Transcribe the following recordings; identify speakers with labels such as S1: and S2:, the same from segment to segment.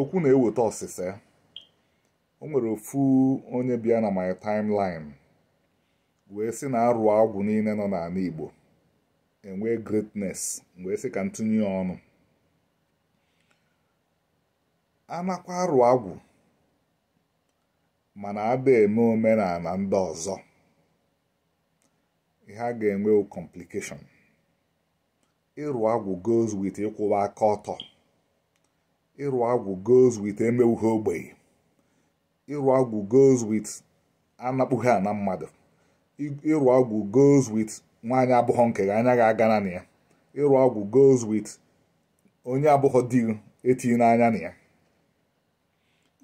S1: okwu na-eweta ọsịsa o nwere ofu onye bịa na my timeline wee sị na arụ agwụ niile nọ n'ala Igbo enwee greatness wee sị ka ntụnye ya ọnụ anakwa arụ agwụ mana ada eme omenala ndị ọzọ ha ga-enwe complication ịrụ agwụ goes with ịkwụwa aka ọtọ ịrụ agwụ goes with emewughị ogbenye ịrụ agwụ goes with anapụghị ana mmadụ ịrụ agwụ goes with nwaanyị abụghọ nke gị anya ga-aga na ya ịrụ agwụ goes with onye abụghọ di etinye n'anya na ya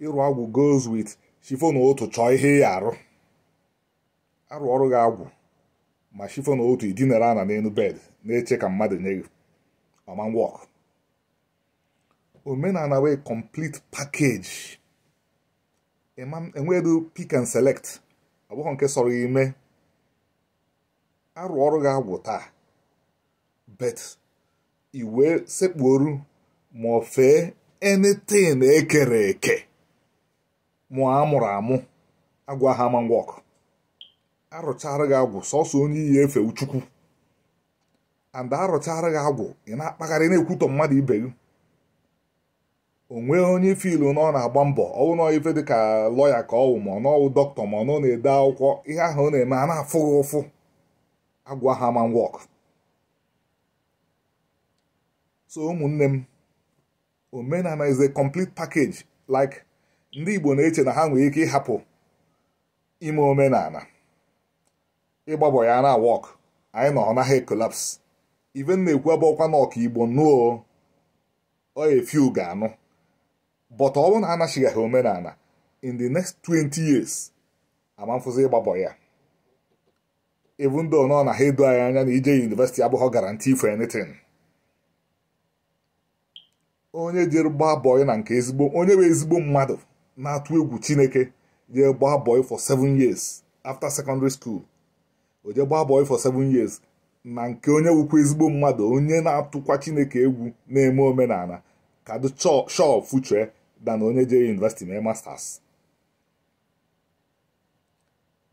S1: ịrụ agwụ goes with shifo na otu chọọ ihe ya arụ arụ ọrụ gị agwụ ma shifo na otu idinara ana n'elu bed na-eche ka mmadụ nye gị ọma wọk omenala wee complete package enwedu pick and select ọ nke sọrọ ime arụ ọrụ ga agwụ taa bet iwe sekpuoru ma ọ fee anything ekere eke ọ amụrụ amụ agwa ha man work arụchara gị agwụ sọsọ onye iyi efe uchukwu and arụchara gị agwụ ị na-akpagharị na-ekwutọ mmadụ ibe gị onwe onye onye fiilu na ọ na-agba mbọ ọwụ na ife ka lọya ka ọwụ ma ọnọwụ dọkịta ma ọ nọ na-ede akwụkwọ ihe ahụ ọ na-eme a na-afụghị ụfụ agwa ha wọk so ụmụnne m omenala is a complete package like ndị Igbo na-eche na ha nwere ike ịhapụ ime omenala ịgbabọ ya na wọk anyị nọ ọ naghị ekolaps iven na-ekwu abụọkwa na ọka Igbo nụọ ọ efiu ga-anụ but ọ bụrụ na anachighị omenala in the next 20 years amamfụzi ịgbabọ ya ebu though nọ na ha edo anyị anya na ije yunivesiti abụghị guarantee for anything onye jere gbaa na nke ezigbo onye bụ ezigbo mmadụ na-atụ egwu chineke jee gbaa bọị for seven years after secondary school o gbaa bọị for seven years na nke onye wụkwa ezigbo mmadụ onye na-atụkwa chineke egwu na-eme omenala kado shọ fuchee na onye jee yunivesiti mee masters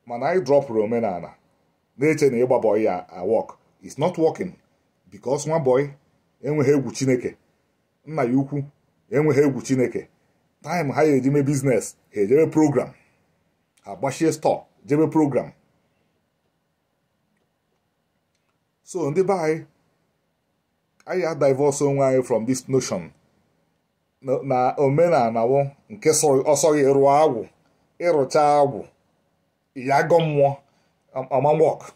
S1: mana anyị dropụrụ omenala na-eche na ịgba bọị ya awọk is not working because nwa bọị enweghị egwu chineke nna ya ukwu enweghị egwu chineke taịm ha ya mee biznes ha ejebe program ha gbachie stọọ jebe program so ndị be anyị anyị adivọs onwe anyị from this notion na omenala wụ nke ọsọ gị rụọ agwụ ịrụcha agwụ ya agọ mmụọ amamwọk um,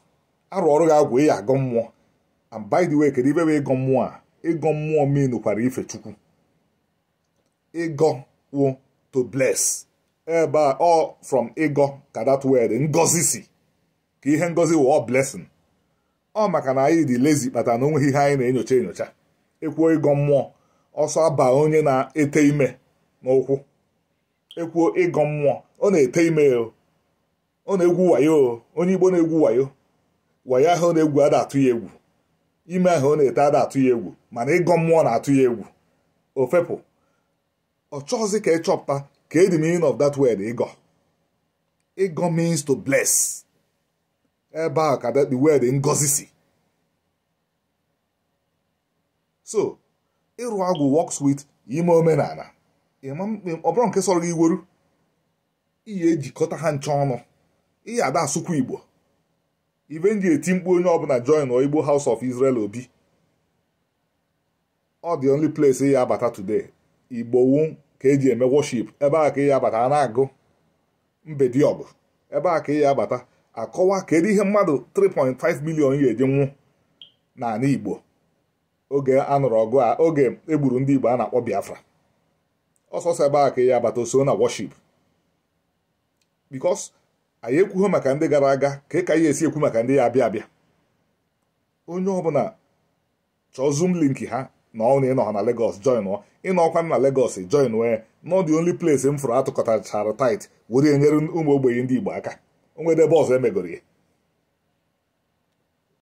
S1: arụ ọrụ gị agwụ ya agọ mmụọ and by the way kedu ibe bụ ịgọ mmụọ a ịgọ mmụọ menukwara ife chukwu ịgọ wụ to bless ebe a ọ from ịgọ ka that word ngozi si ka ihe ngozi wụ ọ blessing ọ maka na anyị dị lezi kpata na onweghị ihe anyị na-enyocha enyocha ekwuo ịgọ mmụọ ọsọ aba onye na-ete ime n'ụkwụ ekwuo ịgọ mmụọ ọ na-ete ime ọ na-egwu wayo onye igbo na-egwu wayo wayo ahụ ọ na-egwu ada atụ ya egwu ime ahụ ọ na-ete ada atụ ya egwu mana ịgọ mmụọ na-atụ ya egwu ofepụ ọ chọghịzi ka ị chọpụta ka edi meaning of that word ịgọ ịgọ means to bless ebe a ka the word ngọzi si so ịrụ agwụ wọks wit ime omenala ọ nke sọrọ gị iweru iyi ejikọta ha nche ọnụ iyi ada asụkwa igbo iven ji eti mkpu onye ọbụla join igbo house of israel obi ọ dị only place ị ya abata today igbo wu ka eji eme worship ebe a ka ị ya abata a na-agụ mbediọgụ ebe a ka ị ya abata akọwa kedu ihe mmadụ 3.5 million ya eje nwụ n'ala igbo oge anụrụ ọgụ a oge egburu ndị Igbo a na-akpọ Biafra ọsọsọ ebe a ka ya abata oso na worship because anyị ekwuho maka ndị gara aga ka ka ya esi ekwu maka ndị ya abịa abịa onye ọbụla chọọ zoom link ha na ọ na ịnọ ha na Lagos join ọ ịnọ ọkwa na legos join wee nọ the only plase m fụrụ atụkọtachara tait were nyere ụmụ ogbenye ndị Igbo aka onwede ebe ọzọ emegoro ya